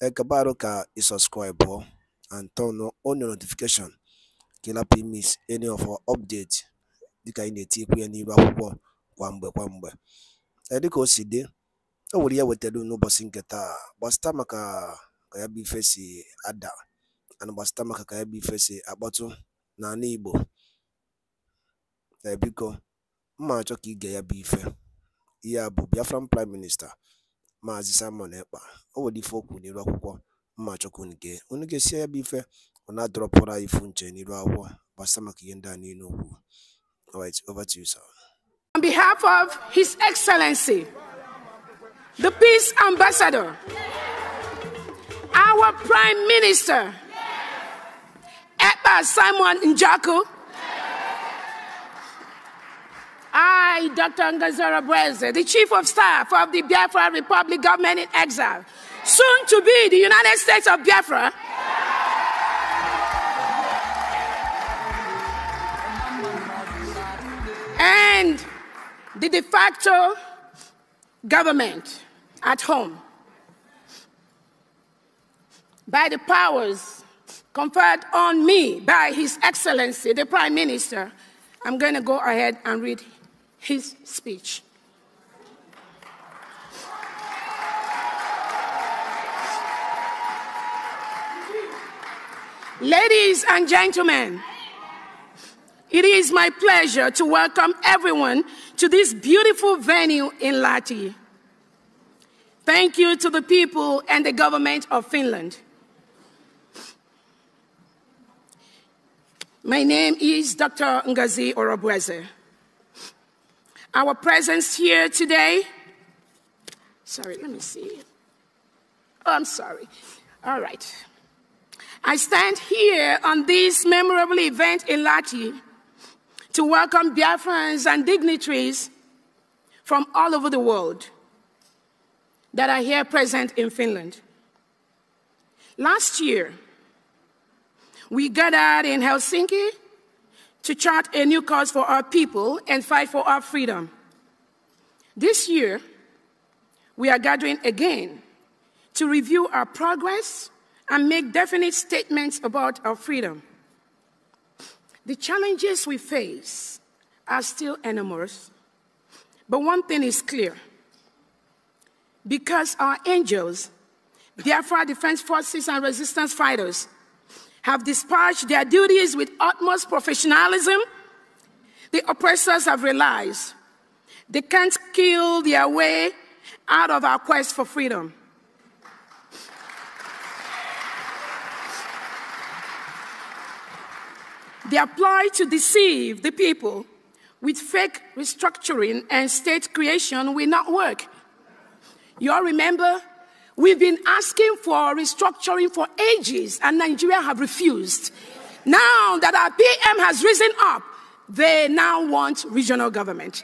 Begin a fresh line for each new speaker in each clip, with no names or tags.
qué ka i subscribe and turn on your notification kila ị any of our update dịka anyị na-etikwu ya n'iru akwụkwọ kwa mgbe kwa mgbe edika o si o nwere ya e wetara n'ụbọchị nke taa gbasịta maka ka ya bụ ife si ada ana gbasịta maka ka ya bụ ife si akpọtụ n'ala Igbo ebiko mma achọ ka ige ya bụ ife ihe a bụ Biafran prime minista Maazị Simon Ekpa o nwere ife okwu n'iru akwụkwọ mmachukwu nke onye ga-esi ya bụ ife ọ na anyị ifu nche n'iru akwụkwọ gbasa maka ihe ndị a niile okwu over to you, sir.
On behalf of His Excellency, the Peace Ambassador, our Prime Minister, Ekpa Simon Njaku, I, Dr. Angazara Bweze, the Chief of Staff of the Biafra Republic Government in Exile, soon to be the United States of Biafra, and the de facto government at home by the powers conferred on me by His Excellency, the Prime Minister. I'm going to go ahead and read his speech. Ladies and gentlemen, it is my pleasure to welcome everyone to this beautiful venue in Lati. Thank you to the people and the government of Finland. My name is Dr. Ngazi Orobweze our presence here today. Sorry, let me see. Oh, I'm sorry. All right. I stand here on this memorable event in Lati to welcome Biafrans and dignitaries from all over the world that are here present in Finland. Last year, we gathered in Helsinki to chart a new course for our people and fight for our freedom. This year, we are gathering again to review our progress and make definite statements about our freedom. The challenges we face are still enormous, but one thing is clear. Because our angels, our Defense Forces, and resistance fighters have dispatched their duties with utmost professionalism, the oppressors have realized they can't kill their way out of our quest for freedom. They apply to deceive the people with fake restructuring and state creation will not work. You all remember We've been asking for restructuring for ages, and Nigeria have refused. Now that our PM has risen up, they now want regional government.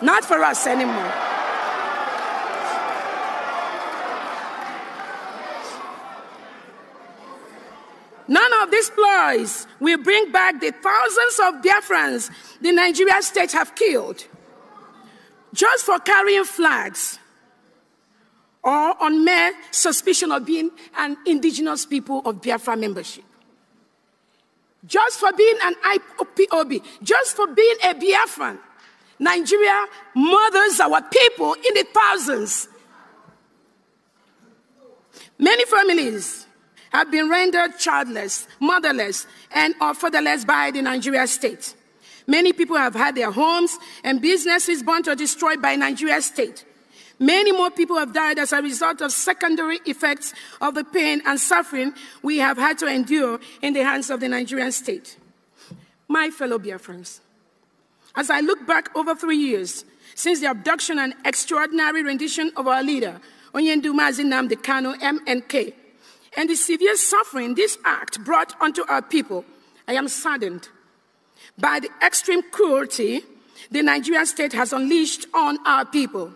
Not for us anymore. None of these ploys will bring back the thousands of Biafrans the Nigerian state have killed just for carrying flags or on mere suspicion of being an indigenous people of Biafra membership. Just for being an IPOB, just for being a Biafran, Nigeria murders our people in the thousands. Many families have been rendered childless, motherless, and or fatherless by the Nigeria state. Many people have had their homes and businesses burnt or destroyed by Nigeria state. Many more people have died as a result of secondary effects of the pain and suffering we have had to endure in the hands of the Nigerian state. My fellow Biafrans, as I look back over three years since the abduction and extraordinary rendition of our leader, Onyenduma Zinamdi Kano, MNK, and the severe suffering this act brought onto our people, I am saddened by the extreme cruelty the Nigerian state has unleashed on our people.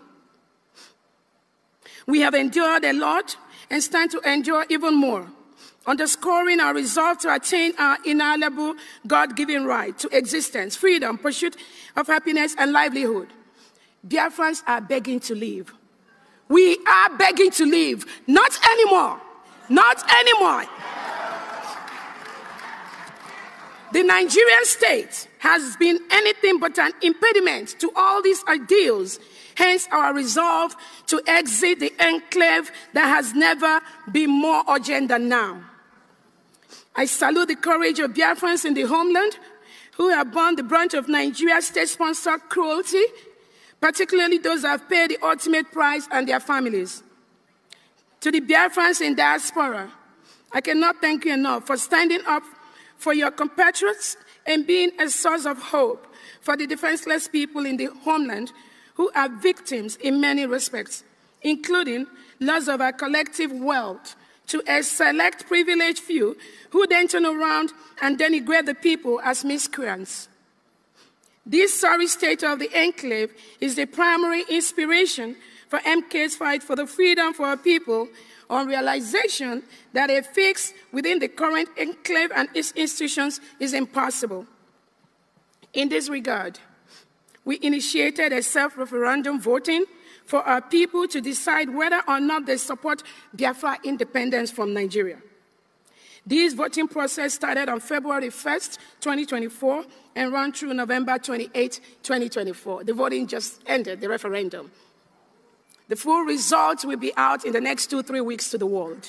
We have endured a lot and stand to endure even more, underscoring our resolve to attain our inalienable God given right to existence, freedom, pursuit of happiness, and livelihood. Biafrans are begging to leave. We are begging to leave. Not anymore. Not anymore. The Nigerian state has been anything but an impediment to all these ideals Hence our resolve to exit the enclave that has never been more urgent than now. I salute the courage of Biafrans in the homeland who have borne the brunt of Nigeria's state-sponsored cruelty, particularly those who have paid the ultimate price and their families. To the Biafrans in diaspora, I cannot thank you enough for standing up for your compatriots and being a source of hope for the defenseless people in the homeland who are victims in many respects, including loss of our collective wealth to a select privileged few who then turn around and denigrate the people as miscreants. This sorry state of the enclave is the primary inspiration for MK's fight for the freedom for our people on realization that a fix within the current enclave and its institutions is impossible. In this regard, we initiated a self referendum voting for our people to decide whether or not they support Biafra independence from Nigeria. This voting process started on February 1st, 2024, and ran through November 28, 2024. The voting just ended, the referendum. The full results will be out in the next two, three weeks to the world.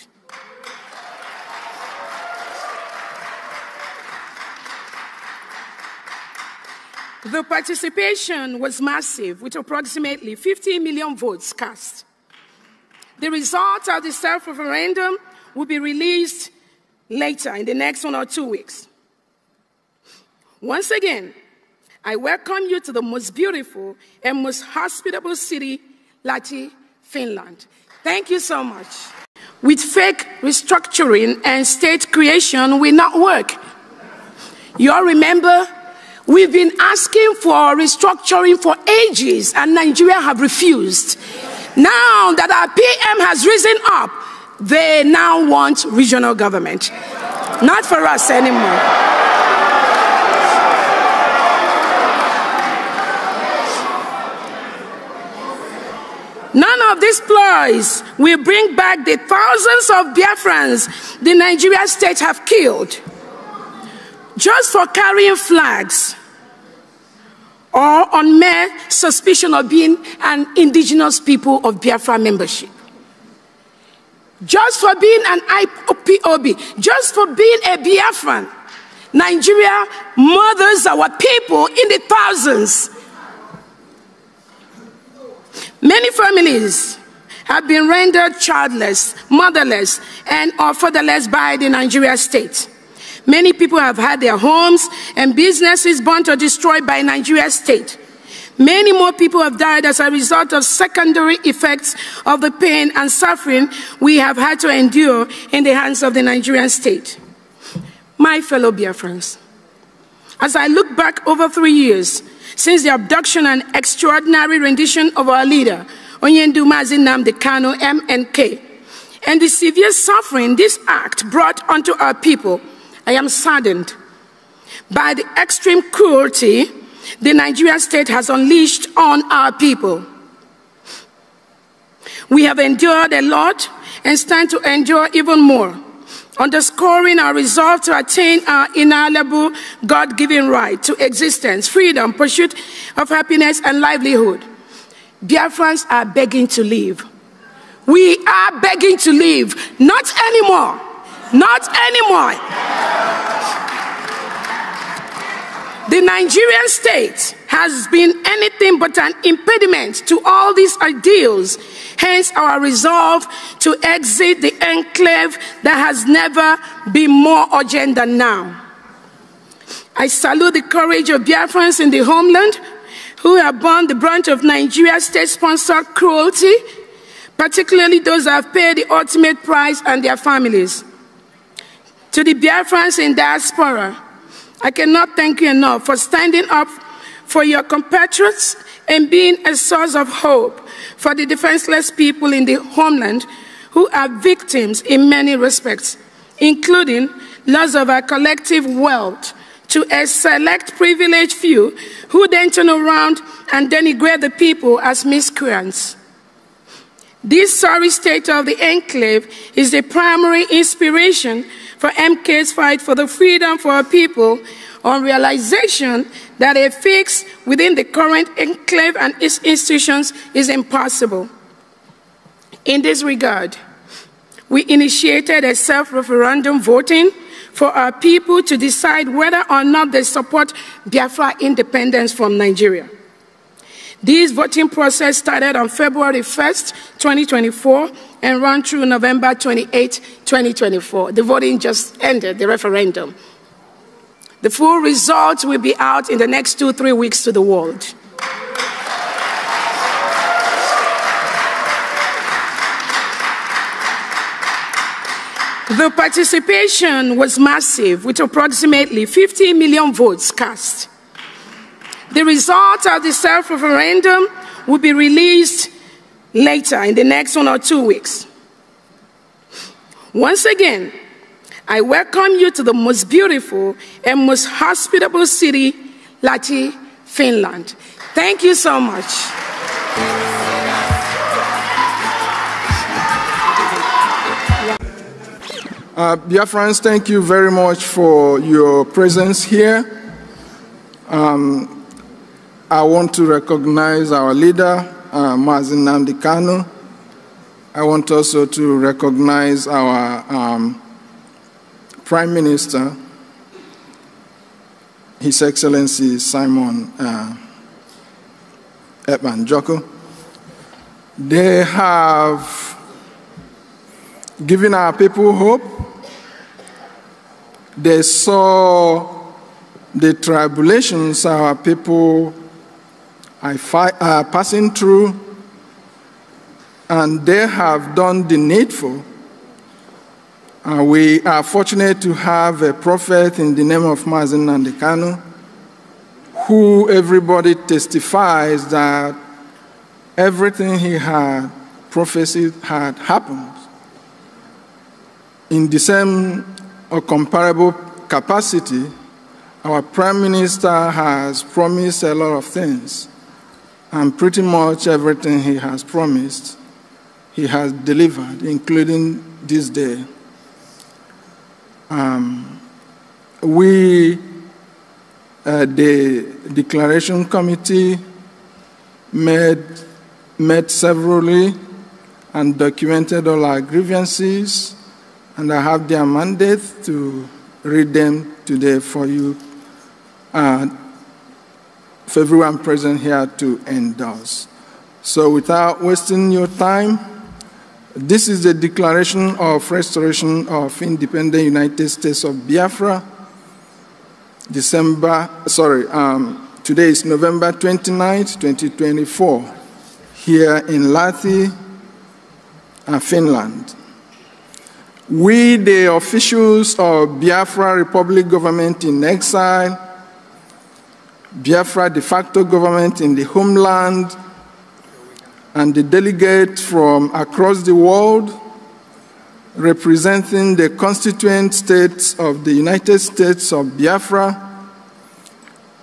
The participation was massive, with approximately 15 million votes cast. The results of the self referendum will be released later in the next one or two weeks. Once again, I welcome you to the most beautiful and most hospitable city, Lati, Finland. Thank you so much. With fake restructuring and state creation will not work. You all remember We've been asking for restructuring for ages, and Nigeria have refused. Now that our PM has risen up, they now want regional government. Not for us anymore. None of these ploys will bring back the thousands of Biafrans the Nigerian state have killed just for carrying flags or on mere suspicion of being an indigenous people of Biafra membership. Just for being an IPOB, just for being a Biafran, Nigeria murders our people in the thousands. Many families have been rendered childless, motherless, and or fatherless by the Nigeria state. Many people have had their homes and businesses burnt or destroyed by Nigeria's state. Many more people have died as a result of secondary effects of the pain and suffering we have had to endure in the hands of the Nigerian state. My fellow Biafrans, as I look back over three years since the abduction and extraordinary rendition of our leader, Onyendu Mazinam Kano, MNK, and the severe suffering this act brought onto our people, I am saddened by the extreme cruelty the Nigerian state has unleashed on our people. We have endured a lot and stand to endure even more, underscoring our resolve to attain our inalienable God given right to existence, freedom, pursuit of happiness, and livelihood. Dear friends, are begging to leave. We are begging to leave. not anymore. Not anymore. The Nigerian state has been anything but an impediment to all these ideals, hence our resolve to exit the enclave that has never been more urgent than now. I salute the courage of Biafrans in the homeland who have borne the brunt of Nigeria's state sponsored cruelty, particularly those who have paid the ultimate price and their families. To the Biafrans in diaspora, I cannot thank you enough for standing up for your compatriots and being a source of hope for the defenseless people in the homeland who are victims in many respects, including loss of our collective wealth to a select privileged few who then turn around and denigrate the people as miscreants. This sorry state of the enclave is the primary inspiration for MK's fight for the freedom for our people on realization that a fix within the current enclave and its institutions is impossible. In this regard, we initiated a self-referendum voting for our people to decide whether or not they support Biafra independence from Nigeria. This voting process started on February 1st, 2024, and ran through November 28, 2024. The voting just ended, the referendum. The full results will be out in the next two, three weeks to the world. The participation was massive, with approximately 50 million votes cast. The results of the self referendum will be released later in the next one or two weeks. Once again, I welcome you to the most beautiful and most hospitable city, Lahti, Finland. Thank you so much.
Uh, dear friends, thank you very much for your presence here. Um, I want to recognize our leader, uh, Mazin Nandikano. I want also to recognize our um, Prime Minister, His Excellency Simon uh, Edman Joko. They have given our people hope. They saw the tribulations our people are uh, passing through, and they have done the needful. Uh, we are fortunate to have a prophet in the name of Mazin Nandekano, who everybody testifies that everything he had prophesied had happened. In the same or uh, comparable capacity, our Prime Minister has promised a lot of things. And pretty much everything he has promised, he has delivered, including this day. Um, we, uh, the Declaration Committee, met, met severally and documented all our grievances, and I have their mandate to read them today for you. Uh, for everyone present here to endorse. So without wasting your time, this is the Declaration of Restoration of Independent United States of Biafra, December, sorry, um, today is November 29, 2024, here in Lathi, uh, Finland. We, the officials of Biafra Republic government in exile, Biafra de facto government in the homeland, and the delegates from across the world representing the constituent states of the United States of Biafra,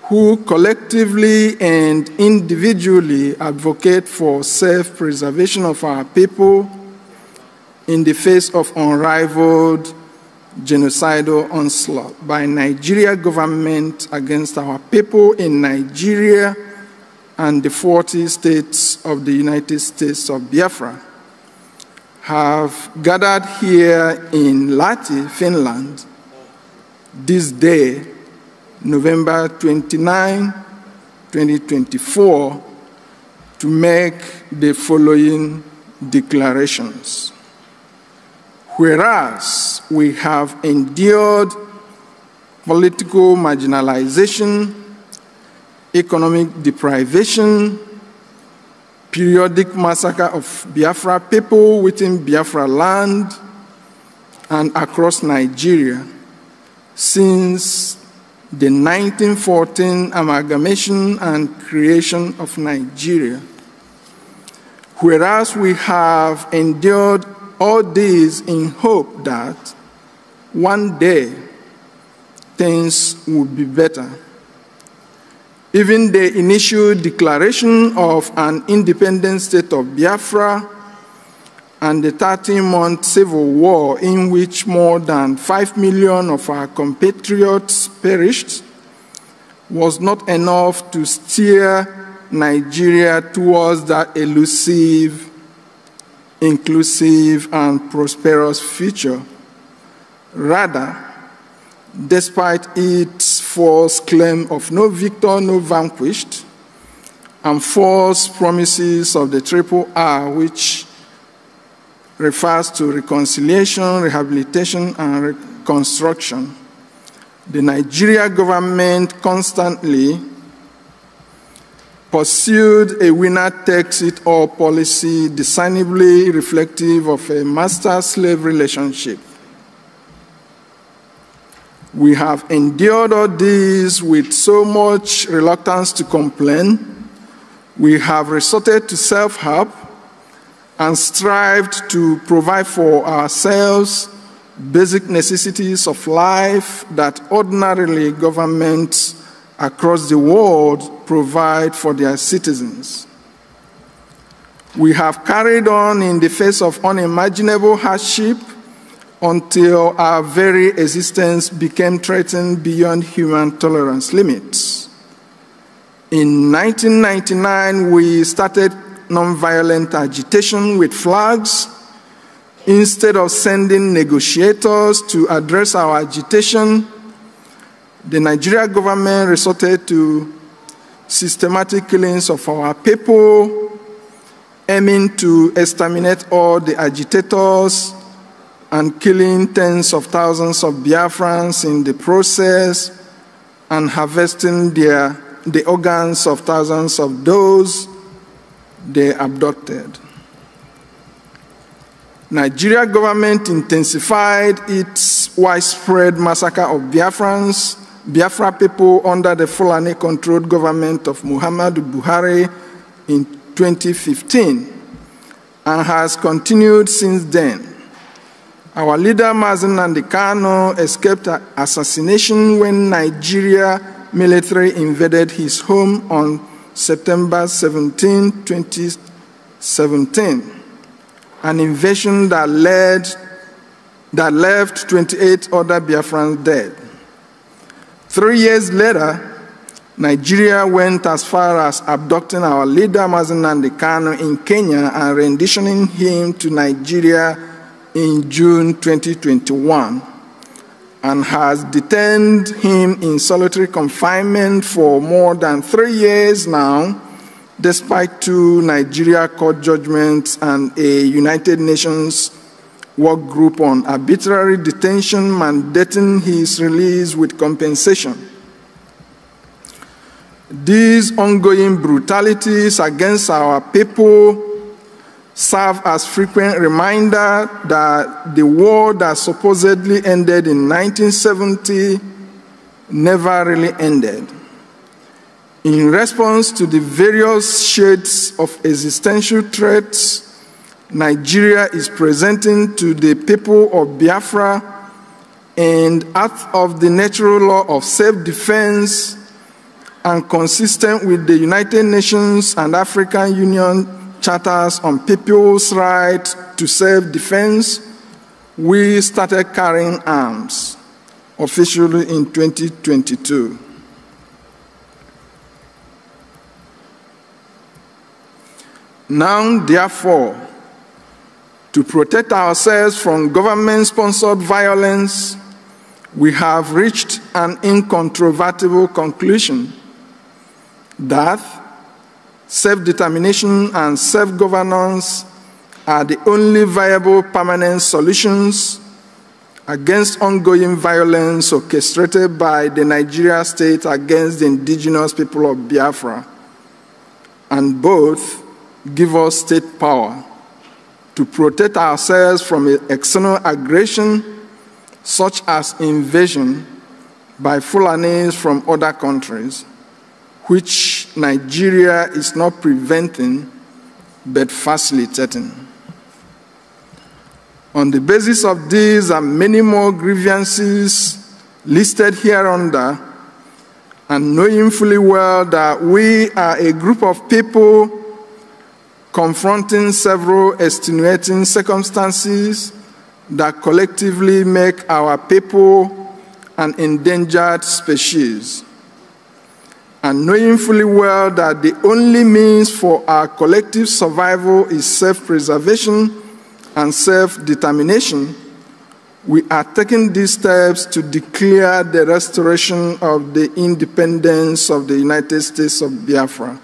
who collectively and individually advocate for self preservation of our people in the face of unrivaled genocidal onslaught by Nigeria government against our people in Nigeria and the 40 states of the United States of Biafra have gathered here in Lati, Finland, this day, November 29, 2024, to make the following declarations. Whereas we have endured political marginalization, economic deprivation, periodic massacre of Biafra people within Biafra land and across Nigeria since the 1914 amalgamation and creation of Nigeria. Whereas we have endured all this in hope that one day things would be better. Even the initial declaration of an independent state of Biafra and the 13 month civil war in which more than 5 million of our compatriots perished was not enough to steer Nigeria towards that elusive inclusive, and prosperous future. Rather, despite its false claim of no victor, no vanquished, and false promises of the triple R, which refers to reconciliation, rehabilitation, and reconstruction, the Nigeria government constantly pursued a winner takes it all policy discernibly reflective of a master slave relationship. We have endured all this with so much reluctance to complain. We have resorted to self help and strived to provide for ourselves basic necessities of life that ordinarily governments across the world provide for their citizens. We have carried on in the face of unimaginable hardship until our very existence became threatened beyond human tolerance limits. In 1999, we started nonviolent agitation with flags. Instead of sending negotiators to address our agitation, the Nigeria government resorted to systematic killings of our people, aiming to exterminate all the agitators and killing tens of thousands of Biafrans in the process and harvesting their, the organs of thousands of those they abducted. Nigeria government intensified its widespread massacre of Biafrans Biafra people under the Fulani controlled government of Muhammadu Buhari in 2015 and has continued since then. Our leader Mazen Nandikano escaped assassination when Nigeria military invaded his home on September 17, 2017, an invasion that led that left 28 other Biafrans dead. Three years later, Nigeria went as far as abducting our leader Mazinandi Kano in Kenya and renditioning him to Nigeria in June 2021 and has detained him in solitary confinement for more than three years now, despite two Nigeria court judgments and a United Nations work group on arbitrary detention mandating his release with compensation. These ongoing brutalities against our people serve as frequent reminder that the war that supposedly ended in 1970 never really ended. In response to the various shades of existential threats Nigeria is presenting to the people of Biafra and out of the natural law of self-defense and consistent with the United Nations and African Union charters on people's right to self-defense, we started carrying arms officially in 2022. Now, therefore, to protect ourselves from government sponsored violence, we have reached an incontrovertible conclusion that self determination and self governance are the only viable permanent solutions against ongoing violence orchestrated by the Nigeria state against the indigenous people of Biafra, and both give us state power to protect ourselves from external aggression such as invasion by Fulanis from other countries, which Nigeria is not preventing but facilitating. On the basis of these and many more grievances listed here under, and knowing fully well that we are a group of people confronting several extenuating circumstances that collectively make our people an endangered species. And knowing fully well that the only means for our collective survival is self preservation and self determination, we are taking these steps to declare the restoration of the independence of the United States of Biafra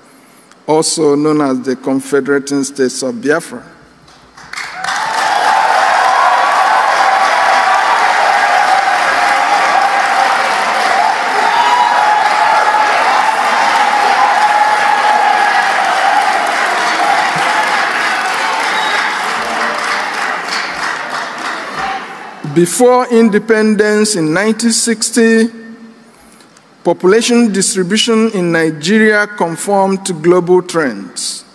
also known as the Confederating States of Biafra. Before independence in 1960, population distribution in Nigeria conform to global trends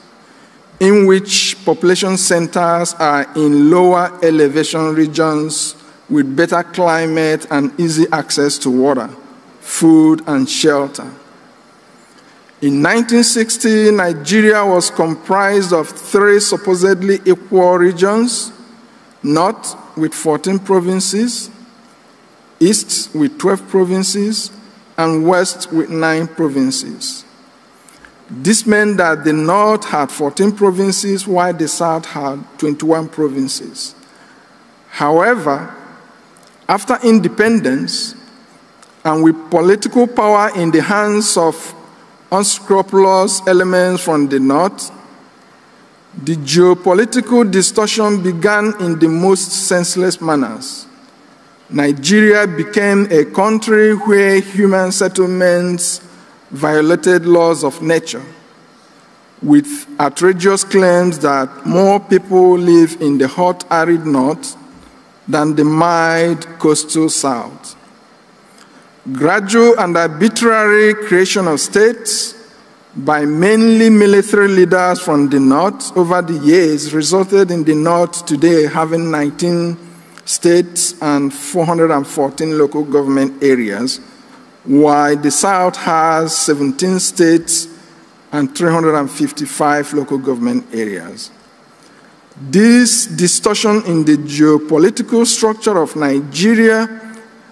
in which population centers are in lower elevation regions with better climate and easy access to water, food, and shelter. In 1960, Nigeria was comprised of three supposedly equal regions North with 14 provinces, East with 12 provinces, and west with nine provinces. This meant that the north had 14 provinces, while the south had 21 provinces. However, after independence, and with political power in the hands of unscrupulous elements from the north, the geopolitical distortion began in the most senseless manners. Nigeria became a country where human settlements violated laws of nature, with outrageous claims that more people live in the hot, arid north than the mild coastal south. Gradual and arbitrary creation of states by mainly military leaders from the north over the years resulted in the north today having 19 states and 414 local government areas, while the South has 17 states and 355 local government areas. This distortion in the geopolitical structure of Nigeria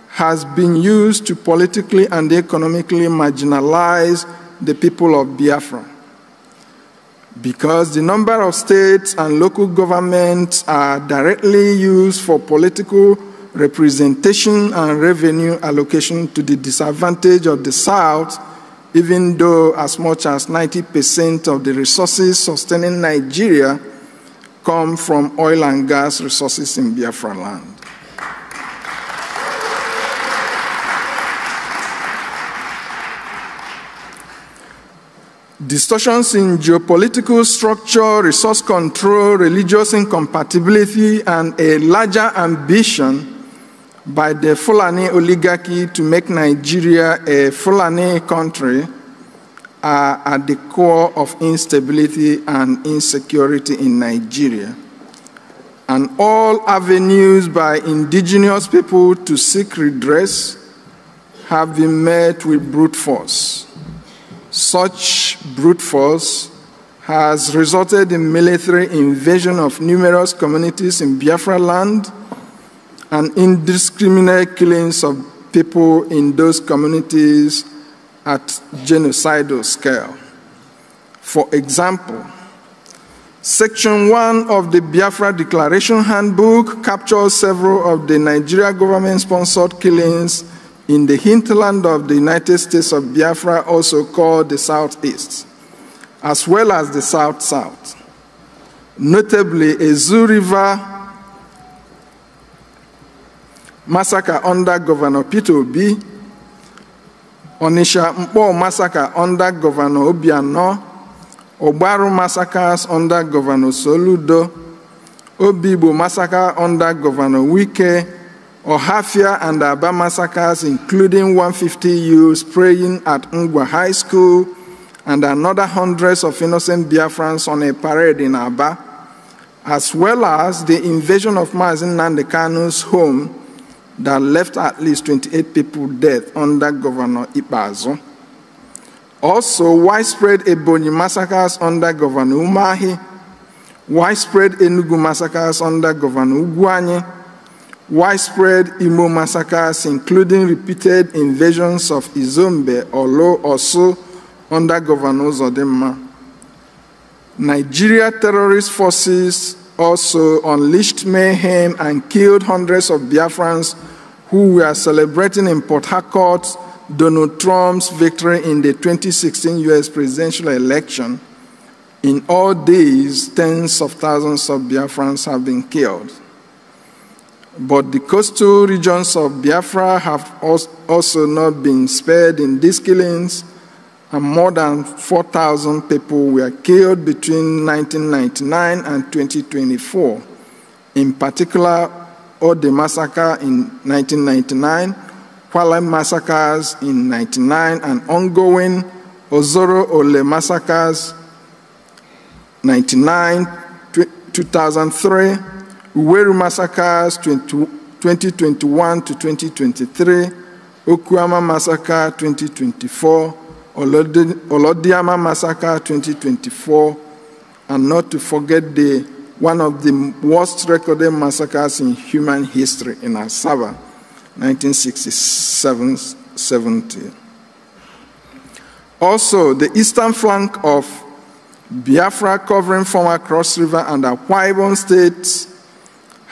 has been used to politically and economically marginalize the people of Biafra because the number of states and local governments are directly used for political representation and revenue allocation to the disadvantage of the South, even though as much as 90% of the resources sustaining Nigeria come from oil and gas resources in Biafra land. Distortions in geopolitical structure, resource control, religious incompatibility, and a larger ambition by the Fulani oligarchy to make Nigeria a Fulani country are at the core of instability and insecurity in Nigeria. And all avenues by indigenous people to seek redress have been met with brute force. Such brute force has resulted in military invasion of numerous communities in Biafra land and indiscriminate killings of people in those communities at genocidal scale. For example, Section 1 of the Biafra Declaration Handbook captures several of the Nigeria government sponsored killings in the hinterland of the United States of Biafra, also called the Southeast, as well as the South South, notably Ezu River massacre under Governor Peter Obi, Onisha Mpo massacre under Governor Obiano, Obaru massacres under Governor Soludo, Obibo massacre under Governor Wike, Ohafia and Aba massacres, including 150 youths praying at Ngwa High School and another hundreds of innocent Biafrans on a parade in Aba, as well as the invasion of Mazin Nandekano's home that left at least 28 people dead under Governor Ibazo. Also, widespread Ebony massacres under Governor Umahi, widespread Enugu massacres under Governor Uguanyi, widespread Imo massacres, including repeated invasions of Izombe, Lo, also under Governor Zodema. Nigeria terrorist forces also unleashed mayhem and killed hundreds of Biafrans who were celebrating in Port Harcourt Donald Trump's victory in the 2016 US presidential election. In all these, tens of thousands of Biafrans have been killed. But the coastal regions of Biafra have also not been spared in these killings, and more than 4,000 people were killed between 1999 and 2024. In particular, all the massacre in 1999, Hualam massacres in 99, and ongoing Ozoro Ole massacres 99, 2003, Uweru massacres 2021 to 2023, Okuama massacre 2024, Olodiama massacre 2024, and not to forget the one of the worst recorded massacres in human history in Asaba, 1967-70. Also, the eastern flank of Biafra covering former Cross River and Akwa states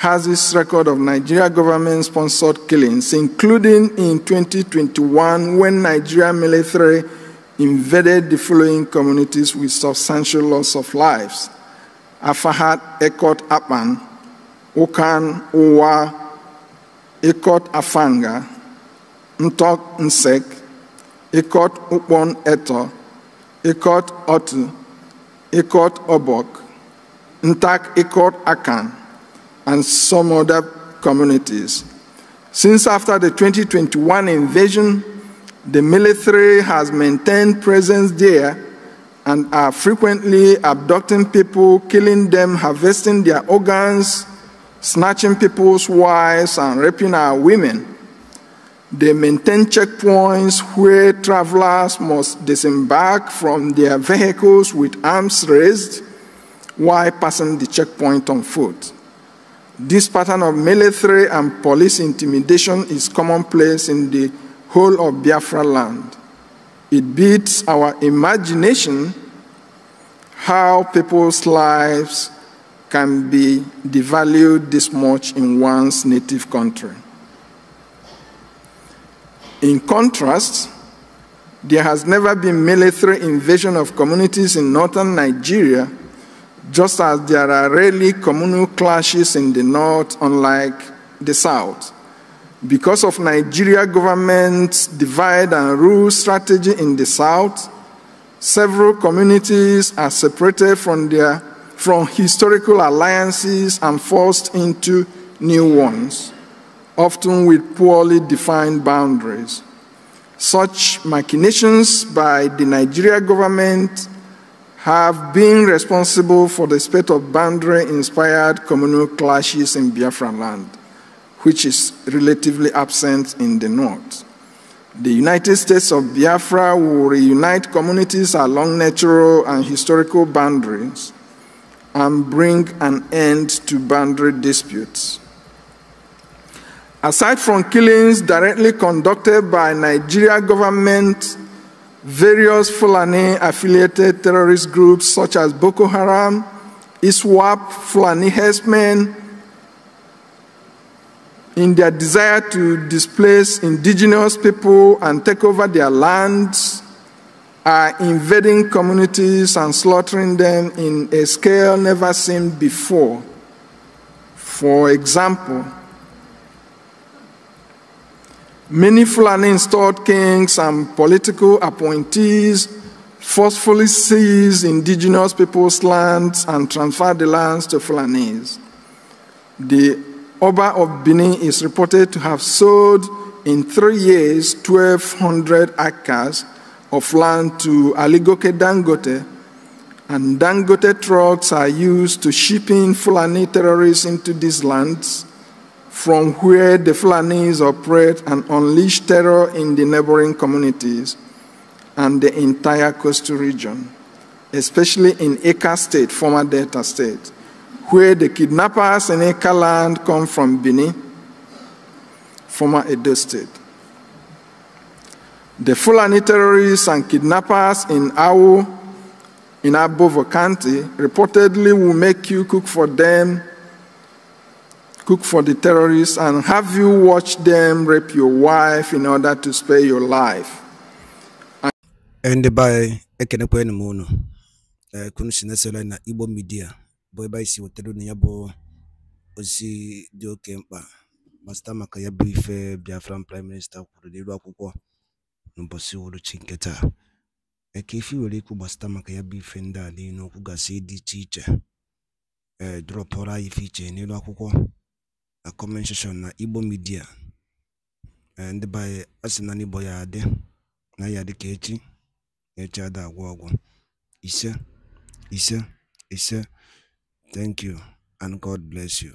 has its record of Nigeria government-sponsored killings, including in 2021 when Nigeria military invaded the following communities with substantial loss of lives. Afahat Ekot Apan, Okan Owa, Ekot Afanga, Ntok Nsek, Ekot Upon Eto, Ekot Otu, Ekot Obok, Ntak Ekot Akan, and some other communities. Since after the 2021 invasion, the military has maintained presence there and are frequently abducting people, killing them, harvesting their organs, snatching people's wives, and raping our women. They maintain checkpoints where travelers must disembark from their vehicles with arms raised while passing the checkpoint on foot. This pattern of military and police intimidation is commonplace in the whole of Biafra land. It beats our imagination how people's lives can be devalued this much in one's native country. In contrast, there has never been military invasion of communities in northern Nigeria just as there are rarely communal clashes in the north, unlike the south. Because of Nigeria government's divide and rule strategy in the south, several communities are separated from their from historical alliances and forced into new ones, often with poorly defined boundaries. Such machinations by the Nigeria government have been responsible for the spate of boundary inspired communal clashes in Biafran land, which is relatively absent in the north. The United States of Biafra will reunite communities along natural and historical boundaries and bring an end to boundary disputes. Aside from killings directly conducted by Nigeria government various Fulani affiliated terrorist groups such as Boko Haram, ISWAP, Fulani Hesmen, in their desire to displace indigenous people and take over their lands, are invading communities and slaughtering them in a scale never seen before. For example, Many Fulani installed kings and political appointees forcefully seized indigenous people's lands and transferred the lands to Fulanis. The Oba of Benin is reported to have sold in three years 1,200 acres of land to Aligoke Dangote, and Dangote trucks are used to shipping Fulani terrorists into these lands from where the Fulanis operate and unleash terror in the neighboring communities and the entire coastal region, especially in Eka State, former Delta State, where the kidnappers in Eka land come from Benin, former Edo State. The Fulani terrorists and kidnappers in Awo, in Abovo County, reportedly will make you cook for them cook for the terrorists, and have you watched them rape your wife in order to spare your life.
And by ekenekwe na munu, eh, kunu sinesele na Igbo media, bụ ebe si wetara na ya ozi dị oke mkpa ma site maka ya bụ Biafran prime minister kwuru n'elu akwụkwọ n'ụbọchị uhuruchi nke taa eke eh, ife nwere ikwu gbasịta maka ya bụ ife ndị a n'okwu gasị dị iche iche a comment na Igbo Media ndị be asị na n'Igbo ya adị na ya dị ka echi echi ada ọgwụ ise ise ise thank you and God bless you